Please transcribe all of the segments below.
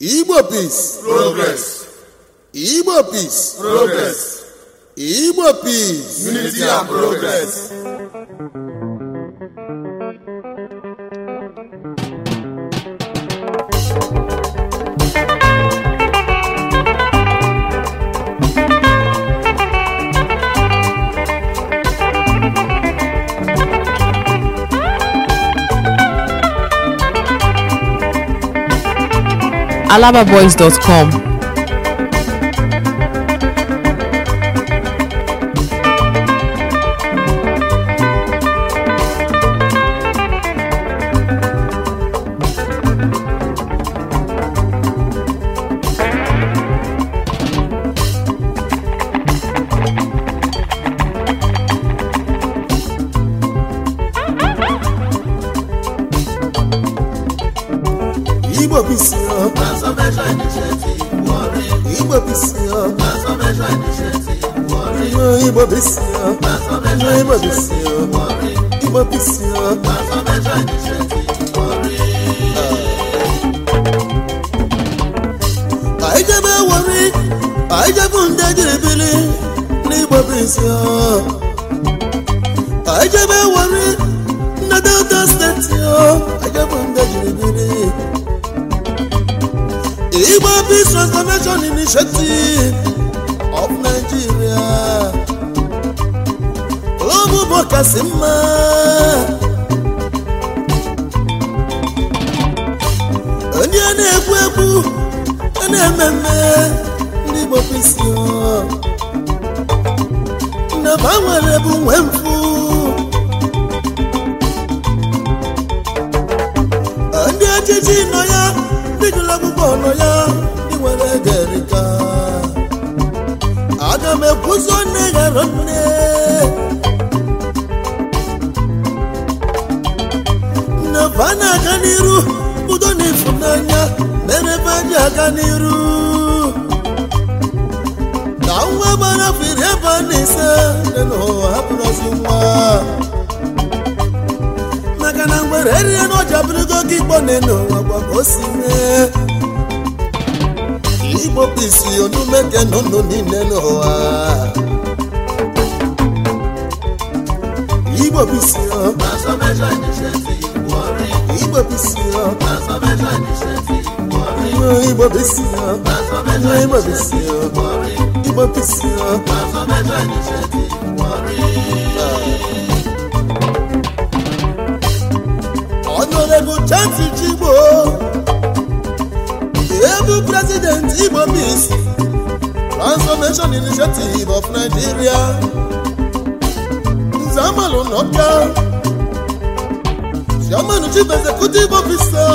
Igbo peace progress. Igbo peace progress. Igbo peace unity and progress. alababoys.com Igbo Igbo Igbo Igbo Anyị jebe wori, anyị jebe ndị jiribiri n'Igbo bisi o. Anyị jebe wori, ndị Delta steeti Anyị jebe ndị Igbo Peace Transformation Initiative of Nigeria ụmụbo kasị mma onye na-egbu egbu na-eme mme ndị Igbo Peace nnaba nwere bụ nwe mfu ndị ejiji nọ ya ndị gụrụ akwụkwọ nọ ya ndị nwere derịka aga m na nne ghara nne nneba a na-aga n'iru udo na ịfụnanya mere ebe a ji aga n'iru na nwa gbara firi ebe a na ise dị n'ụwa hapụrụzi nwa maka na mgbere eriri na ọja bụrụgo oge igbo na-eno ụwa gwa o si nụnụ niile n'ụwa igbo bụisi igbo bụ chansụl Igbo ebu prezident Igbo Peace Transformation Initiative of Nigeria Nzamalụ Executive Officer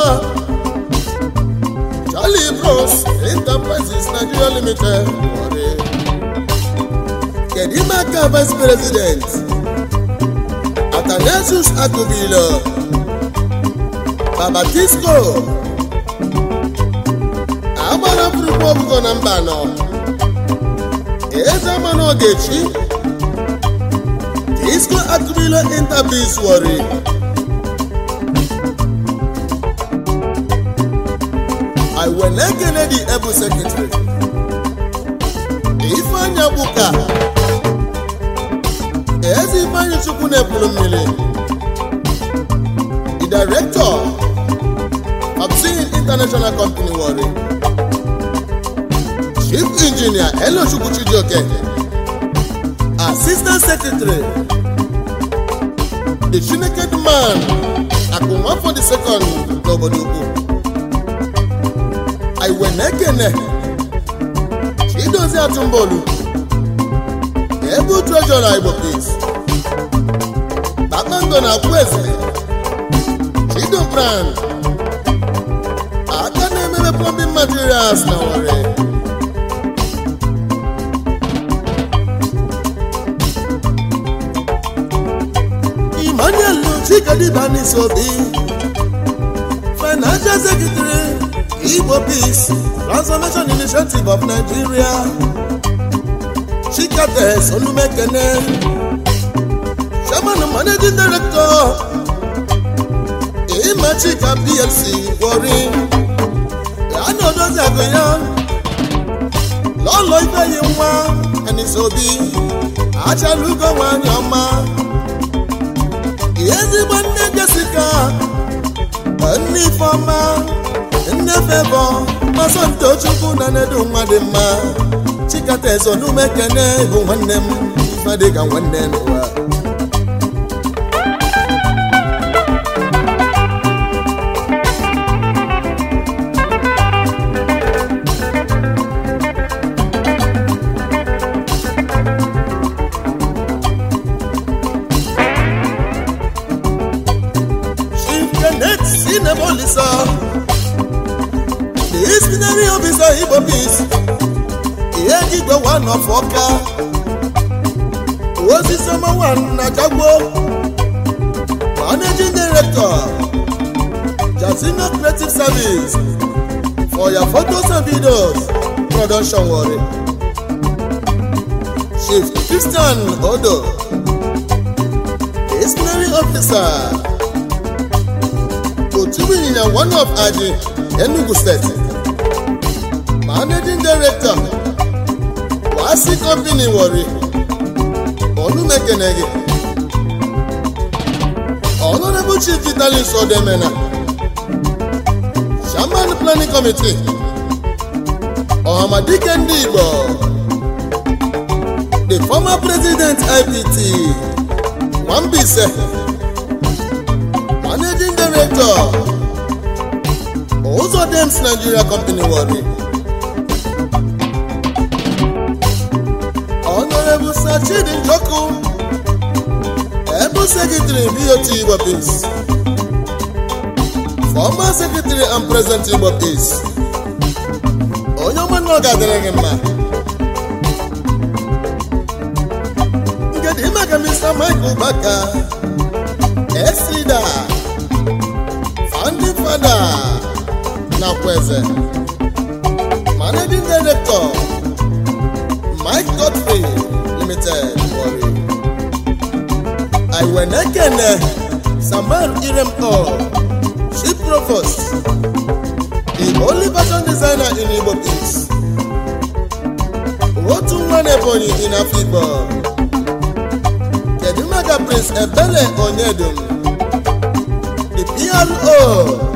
Charlie Bros Enterprises Nigeria Limited Kedimaka Vice President Akubilo baba disco agbara pụrụkwa ọgụgọ na mba nọ eze mana ogechi disco akụbilo intabis wori i wele ekele di ebu sekretari ifeanya ka? ezi ifeanyi chukwu na-ebulu mmiri Director of Singing International Company Warri, Chief Engineer Elo Chijioke, Assistant Secretary, The Chineke Man for the Second n'obodo ukwu Iwenekene Chidozie Atumbolu Ebu Treasurer Igbo Peace Kpakpando na Akwuezile freedom brand aka na-emebe plumbing materials na were Emmanuel Chikadiba n'isi obi financial secretary Igbo Peace Transformation Initiative of Nigeria Chikates Olumekene Chairman Managing Director Igwe Chika PLC na Ana Joseph ya Lolo Ifeyi nwa Enisobi Achalugo nwanyị ọma ezigbo nne Jessica nne Ifeọma nne Favour Masọ ntochukwu na Nnedu nwa dị mma Chikata Ezonume Kene bụ nwanne m ife nwanne n'ụwa ọfisa the ispinary ọfisa igbo mis ihe ndị igwe wan of oka osisi ọma wan na jagbo managing director jasino creative service for your photos and videos production wari chief christian odo ispinary officer Chibuinya one of Aji Enugu State Managing Director Wasi Company Warri Olumekenege Honorable Chief Vitalis Odemena shaman Planning Committee ohamadike ndị Igbo The former President IPT Nwambise ụlọ Uzodim's Nigeria Company Warri Honorable Sir Chidi Njoku Able Secretary BOT Igbo Peace Former Secretary and President Igbo Peace onye ọma na ọ ga-adịrị gị mma nke maka Mr. Michael Baka Esida fada na eze managing director Mike Godfrey Limited Warri Iwenekene Samuel Iremko Chief Provost The only fashion designer in Igbo Peace otu nwa na in Afikpo kedu maka Prince Ebele Onyedum the PRO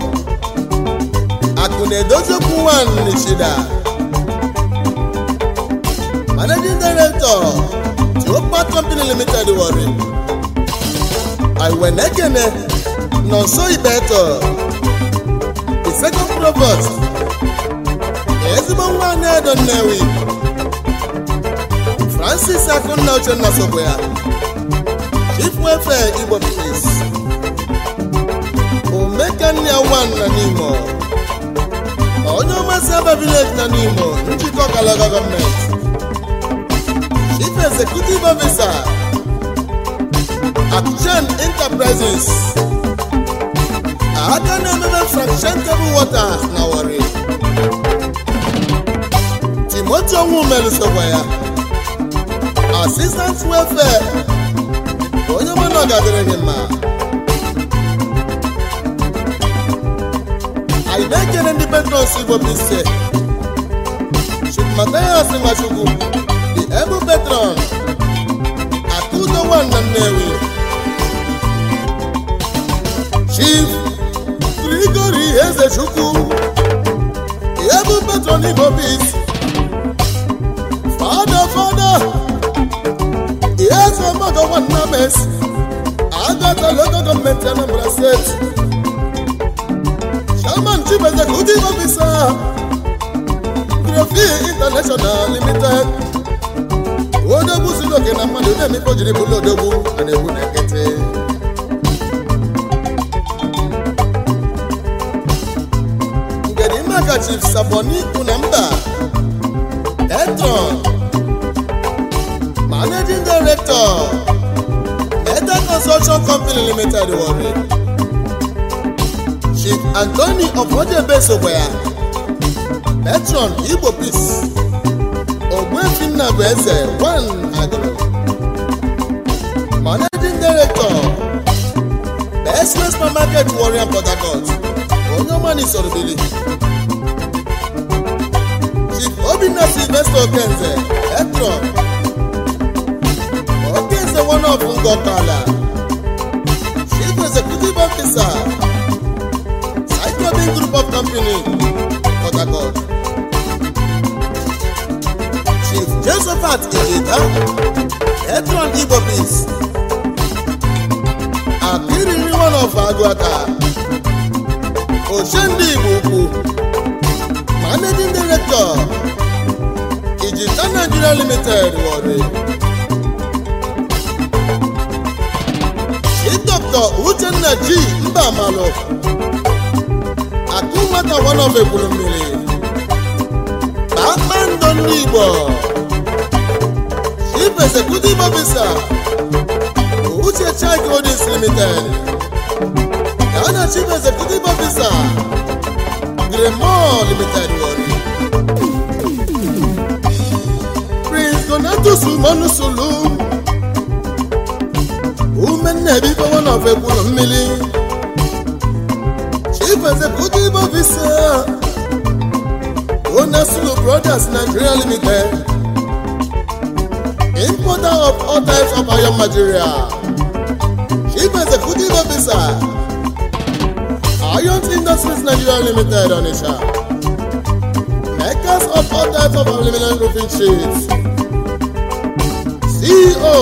Chukwu na-edozi okwu nwanne Chida Managing Director Tuopa Company Limited Warri Iwenekene Nonso Ibeto the second provost ezigbo nwa Anedo Nnewi Francis Akunna Uchenna Sogboya Chief Welfare Igbo Police Omekania Nwanna n'Imo onye ọmasị aba village na n'Imo njikọ Kalaga gọọmenti chief executive officer Abidjan Enterprises aka na-emebe fraction table waters na Warri Timothy Onwumelu sokwa ya assistant welfare onye nwe na ọgadịrịghị mma anyị na-ekele ndị petros igbo bise chukwumatayas nwachukwu dị ebu petron akụdo nwanna nnewi chief grigori eze chukwu ebu petron igbo fada fada eze mmadụ nwanna mes agatala gọọmenti anambra steeti chibezek ụdị ọfisa grafi international limited na mmadụ na-emikpo jiri bụlụ na nkịtị na mba etron Chief Antoni Ofodebe sokwa ya Patron Igbo Peace Ogbuefi Nnabụ Eze Agụrụ Managing Director Best Supermarket Warrior Port Harcourt onye ọma n'isorobili Chief Obinna Sylvester Okenze Patron Okenze one of Ngọkala Chief Executive Officer Group of Company, Port Harcourt. Chief Josephat Ejeda, Etron Igbo Peace. Akiriri one of Aguaka. Oshende Igbo Ukwu. Managing Director, Ijita Nigeria Limited, Warri. Chief Dr. Uchenna G. Mbamalov. nwata wanọfe ekwuru mmiri kpakpando ndị Igbo Chief Executive Officer Uche Chai Holdings Limited Ghana Chief Executive Officer Gremol Limited Wari Prince Donatus Umonusulu Umennebi bụ wanọfe ekwuru mmiri Maazị Kudibo Visa Ona Sulu Brothers Nigeria Limited Importer of all types of iron material Chief Executive Officer Iron Industries Nigeria Limited onisha? Makers of all types of aluminium roofing sheets CEO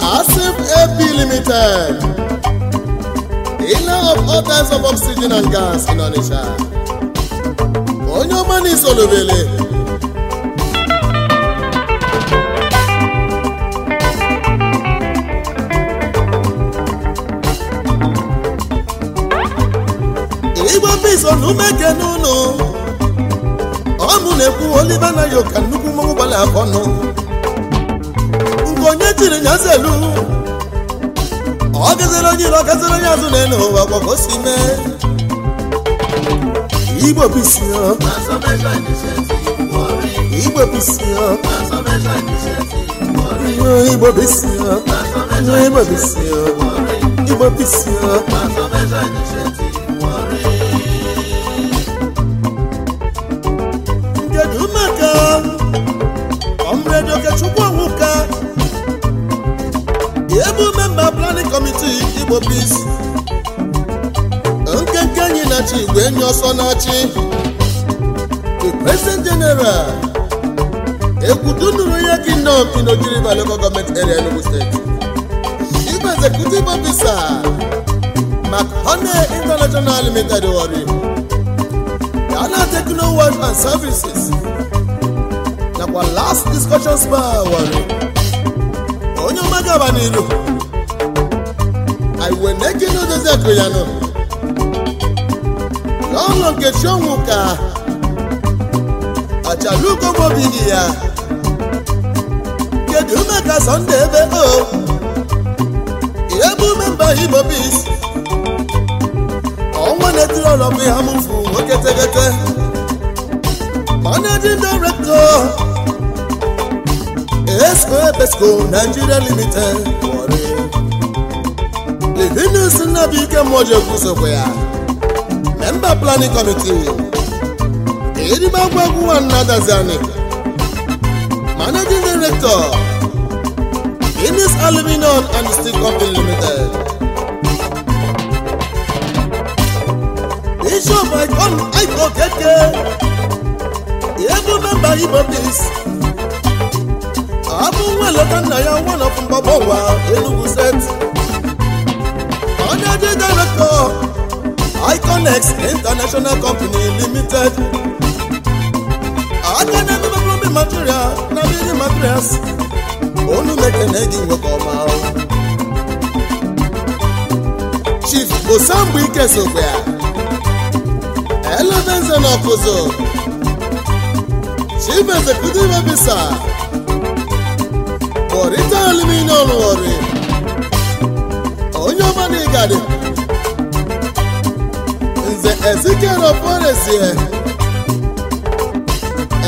Asif AP Limited ina of all types of oxygen and gas in Onitsha onye ọma na isolubele igwe pisonumeke n'ụlọ ọnụ na-ekwu Oliver Nayo ka nnukwu mmọnwụ gbara afọ ọnụ nke onye chiri nyazelu ọ onye iro gaziri onye azụ na elu ụwa gbakọ si mee igbo bisi igbo bisi kedu maka ọmredoke chukwu ọnwụka ebe memba planning committee igbo peace nkenke enyi na chi igwe enyi ọsọ na-achị the president general ekwudunuru ya kingdom in Ogiriba local government area Enugu steeti igwe executive officer McHoney international limited ori Ghana Techno World and Services nakwa last discussion bar wari onye ọma gaba n'iru iwe na-ekene odoziakụ ya nọ n'ọṅụ nke chiọnwụ ka ọchalukomobighị ya kedu ume ka sọnde ebe o ebe ume mba igbo bis ọnwa na-etiri ọlọ bụ ihe mụfu nwoke tegete managing director esco ebesco nigeria limited inusi nnabuike mmụọjiekwu sokwa ya memba planning committee erimagwu egwu nwanna daziani managing director inis aluminum and steel company limited bishop icon icon keke egwu memba igbo peace abụ nwa eleta nna ya nwa nọpụ mgbagbo ụwa Enugu set onye dị direktọ iconex international company limited aka na-emebe bubi material na biri materials olu mekene gị nwekọ ọma chief osambuike sokwe ya elevenze na ọkụzụ chief executive officer borita aluminium ọrụ ndị gari nze ezikeroporesie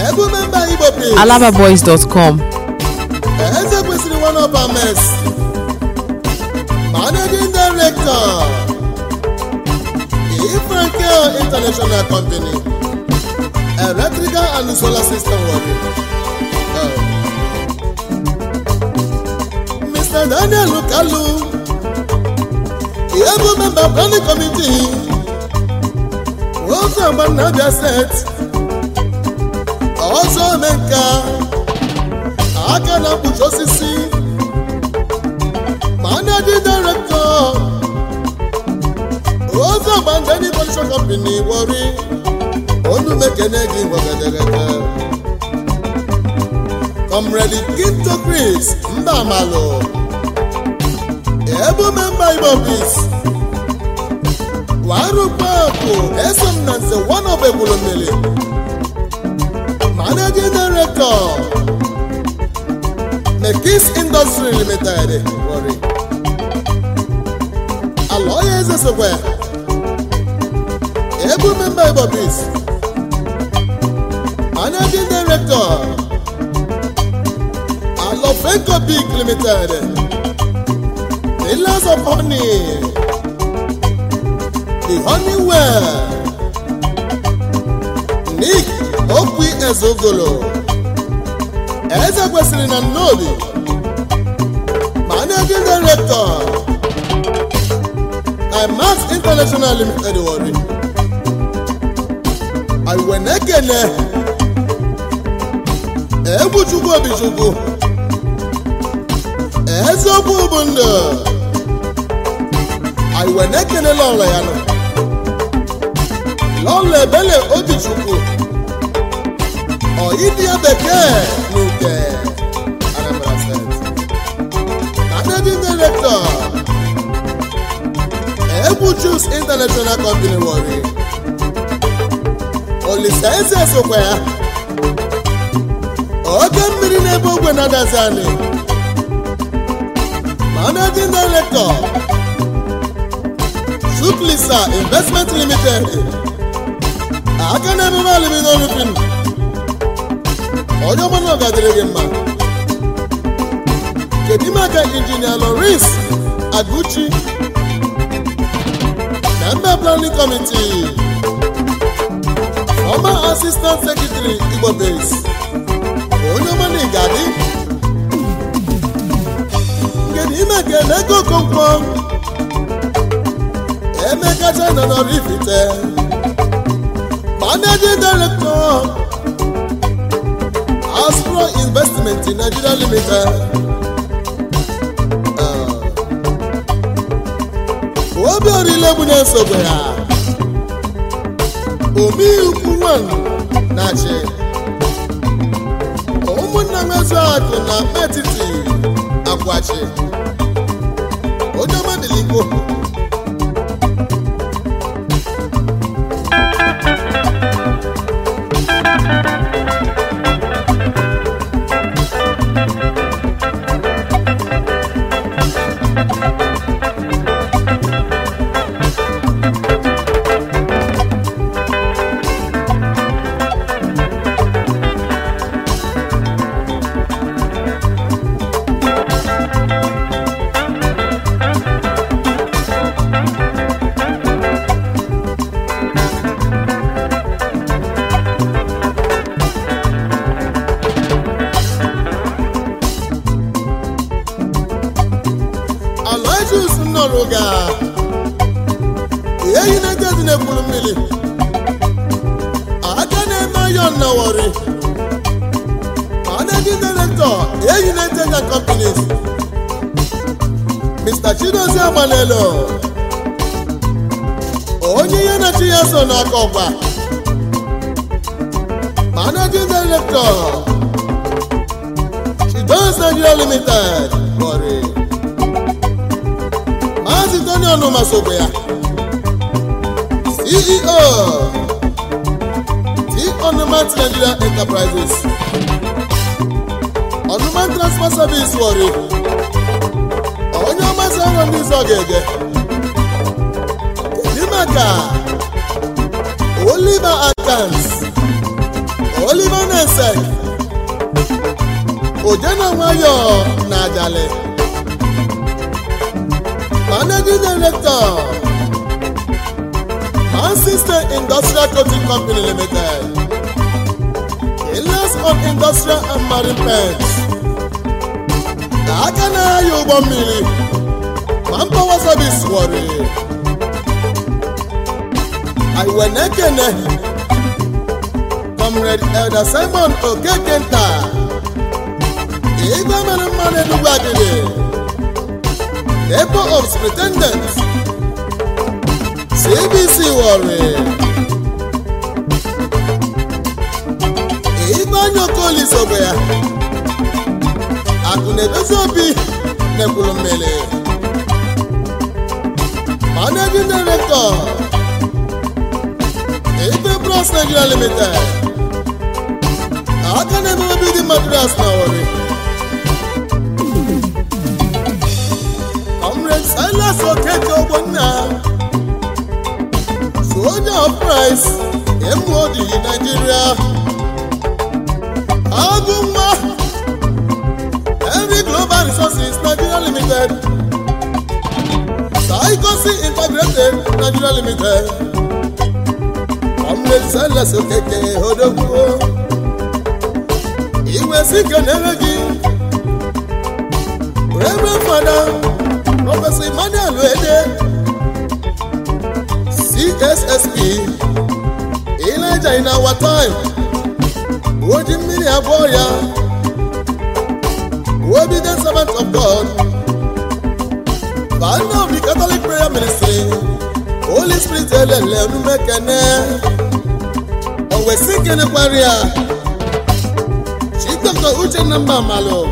ebumemba igbo alababoys.com eze kwesịrị one of our mess managing director ifranke international company electrical and solar system working Mr. Daniel Kalu ihe bụ memba planning committee ọzọ agba na ọzọ omenka aka na mkpuchi osisi managing director ọzọ agba ndani production company wori onu mekene gị gwagadaga comrade Kinto mba Mbamalo ebume mba igbo bis warụkpapụ eso m na nze wanobegwuru mmiri managing director mekis industry limited Warri ala eze sokwa ebume mba igbo bis managing director alofenko big limited the last of honey, the honey well, Nick okwu Ezogolo, Eze kwesịrị na Nnoli, Managing Director, IMAX International Limited Wari, Iwenekene, Egwu Chukwu Obichukwu, eziokwu bụ ndụ anyị wee na-ekele lọlọ ya nọ lọlọ ebele obichukwu ọyịdịya bekee na uke Anambra steeti na debi direktọ egwu Juice International Company Warri Olisaeze sokwa ya oke mmiri na ogwe na-adazi anyị ma na ndị direktọ Chukwulisa Investment Limited aka na emume aluminum roofing onye ọbụla ọgadịrị gị mma kedu ime aka injinia Loris Aguchi na mba planning committee former assistant secretary Igbo base onye ọbụla ị ga-adị kedu ime aka na ego Emeka China Oraifite managing director Astro Investment in Nigeria Limited ah. Obiorila Egbunye nsogbu ya Omiukwu nwanyị na-achị ụmụnna Nwezuakụ na Metiti Akwachi Ojoma Diligbo nọ n'aka ọgba managing director Chidons Nigeria Limited Warri Maazị Tony Onuma ya CEO T Onuma Nigeria Enterprises Onuma Transport Service Warri onye ọmasị ahụ ndị ọzọ ga-ege Oliver Adams Oliver Nesek Ojena Nwayọ na Ajale Managing Director Manchester Industrial Coating Company Limited Elias of Industrial and Marine Pens na aka na-aya ụgbọ mmiri ma mpawa service wọrị anyị wee comrade elder simon okeke nta igwe mere mmanụ enugwu adịrị ebo of superintendent cbc wọrị igwe anya okolisobe ya akụ na-edozi obi na ekwuru mmiri Finance Nigeria Limited aka na-eme obi dị Madras na Warri Comrade Silas Okeke Ogbonna Soldier of Price MOD Nigeria Agụmma Henry Global Resources Nigeria Limited Saikosi Integrated Nigeria Limited sala sokeke odogwu iwe si kenere gị rebe fada prọfesọ emmanuel ede cssp ileja na our time oji mmiri abụọ ya obedient servant of god Father of the catholic prayer ministry holy spirit elele onumekene wesi kelekwara ya Uche na mba malụ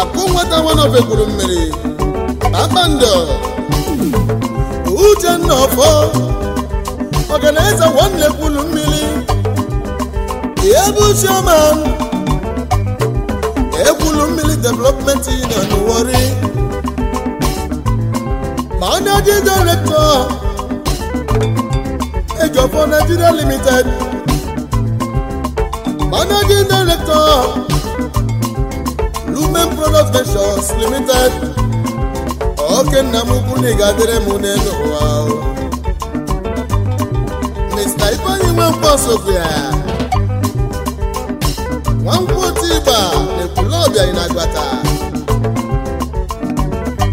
akụ nwata nwanobe gwuru mmiri kpakpando uchenna ọfọ eze nwanne kwuru mmiri Ihe bụ uchioma Ekwulu mmiri development union wori ma onye dị direktọ Nigeria Limited Managing Director Lumen Product Ventures Limited oke nna na Mr. Sofia Tiba agbata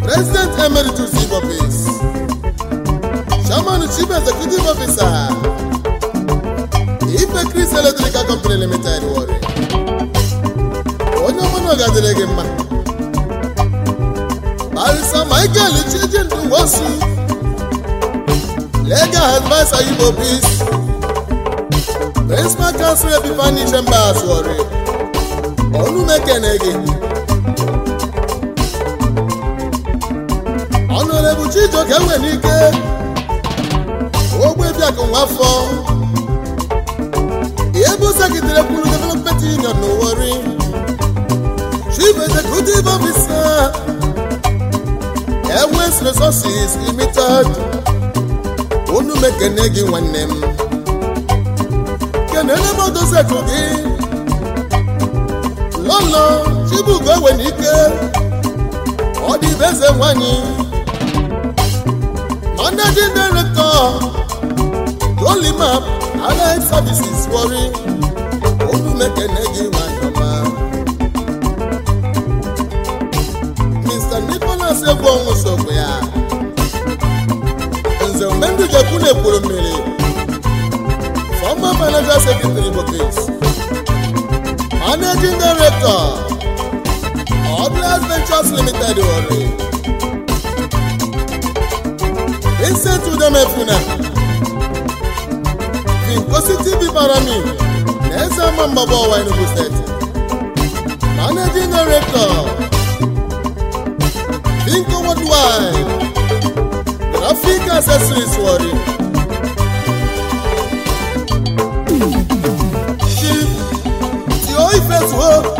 President Emeritus Chairman Chief Executive Officer Sule eletrik Electrical Company Limited Warri onye ọmụnụ gadịrị gị mma Barisa Michael Chijindu Nwosu Legal Advisor Igbo Peace Principal Counsel Epiphany Chambers Warri olumekene gị ọnụrebu Chijioke Nwenike nwa Nwafọ Musa gidere kwuru development union n'Owori chief executive officer Airways Resources Limited unu mekene gị nwanne m kenene m odoziku gị lọlọ chibugo ewe n'ike ọ dị na eze nwanyị managing director Jolimap allied services Warri olumekene gị nwanyọma mr nicholas egwu ọnwụ sokwa ya nze mgbe ndị ga-ekwu na-ekwuru mmiri former manager secretary bokes managing director Atlas Ventures Limited Warri Vincent Udemefuna Nkositi Ibibarami na eze ama mgbaba ọwa Enugu steeti managing director Finko Worldwide Graphic Accessories Warri Chief Tio Ifezuo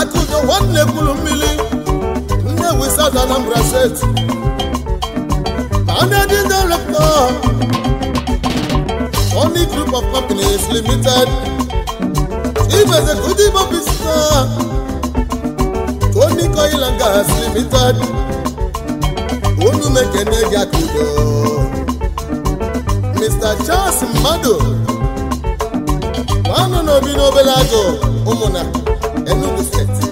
Atụjọ nwanne kwuru mmiri Nnewi South Anambra steeti managing director Money Group of Companies Limited Ibeze Kudibo Business Tony Coil and Gas Limited Unu mekene gị aka Mr. Charles Mmadụ nwanne n'obi n'obere agụ ụmụna Enugu steeti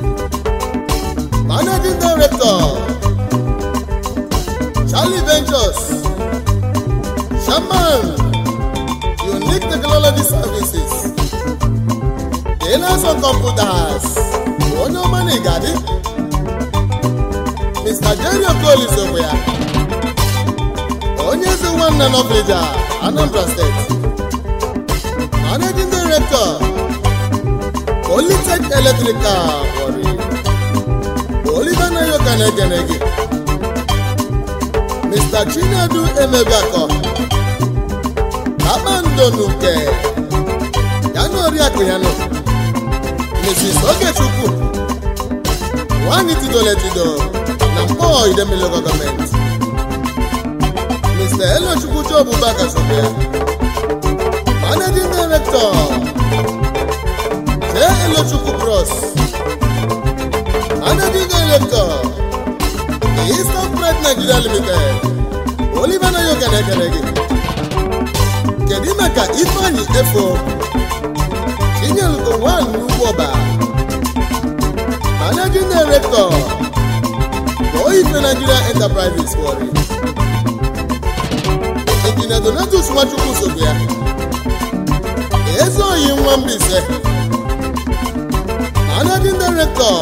Managing Director Charlie Ventures Shaman unique technology services Dealers on computers onye ọma na igadi Mr. Jerry Okoli ya onye eze nwanne Noflija Anambra Steeti. Managing Director Polytech Electrical wori Oliver Nayoka na-egene Mr. Chinedu Emebiakọ Chidonuke yana oriakụ ya nọ Mrs. Ogechukwu nwanyị tidoro etido na mkpọọ Idemili gọọmenti Mr. Elochukwu Job Bagasobe Managing Director J. Elochukwu Cross Managing Director Eastern Pride Nigeria Limited Oliver Nayoka na gị kedu ime ka ifeanyị efo inyelụgo nwaanyị ugwu na managing director Oyife Nigeria Enterprises Warri injinia Donatus Nwachukwu sobu ya Ezeoyi Nwambise managing director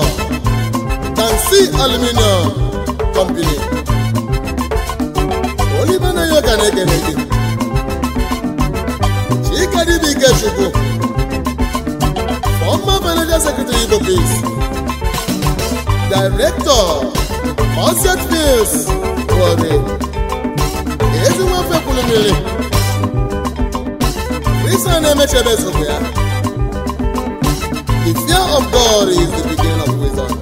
Kansi Aluminium Company Oliver Nayoka na-ekene gị Adibike Chukwu former manager secretary Ibopis director Onset News Warri Ezinwafe Kwulummiri Christian na-emechebe sokwa ya The fear of God is the beginning of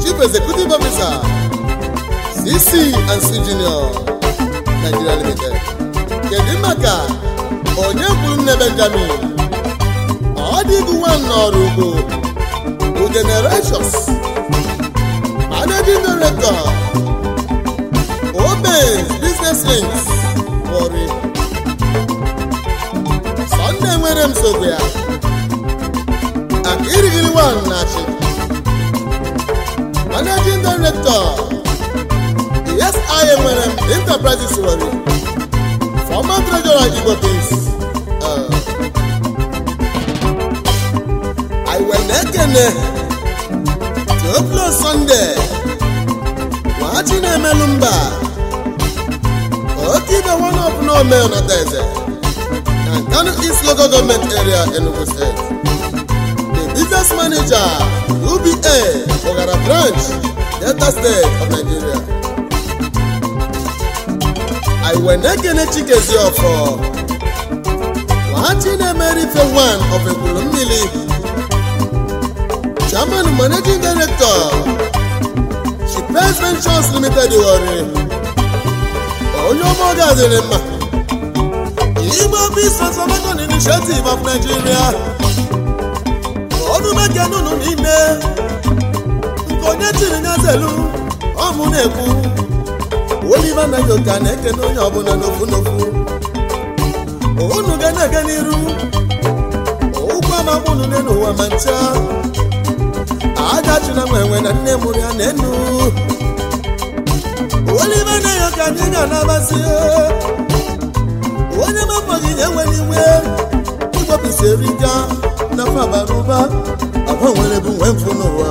Chief Executive Officer CC and C Junior Nigeria kedu maka onye kwuru nne benjamin ọ dịghị n'ọrụ ugbo bụ generations managing director Obes Biznes Links Warri Sọnde nwere m sogbu ya Akirigiri nwa na-achị managing director ESIA nwere m enterprises Warri wepụsị iwe na-ekene Theophilus Sunde nwachi na-emelụ mba oke ibe nwana ọbụla ome ọnataeze East Local Government Area Enugu State the business manager UBA Ogara branch Delta State of Nigeria anyị wee na-ekene chikezi ọfọ nwahachi na-emere ife wan of ekwulu mmiri chairman managing director Shipes Ventures Limited Warri onye ọma gaziri mma Igbo Peace Transformation Initiative of Nigeria ọdụ meke nụnụ niile nke onye chiri nyazelu ọmụ na-ekwu Oliver na-ekene onye ọbụla n'ofu n'ofu unu ga na-aga n'iru ụgwọ ama unu n'ụwa ma ncha agachina nwenwe na nne mụrụ ya na enu Oliver Nayoka anyị ga onye na-enwere iwe igbopụsị erika na fabarụba agbanwere bụ nwe mfụ n'ụwa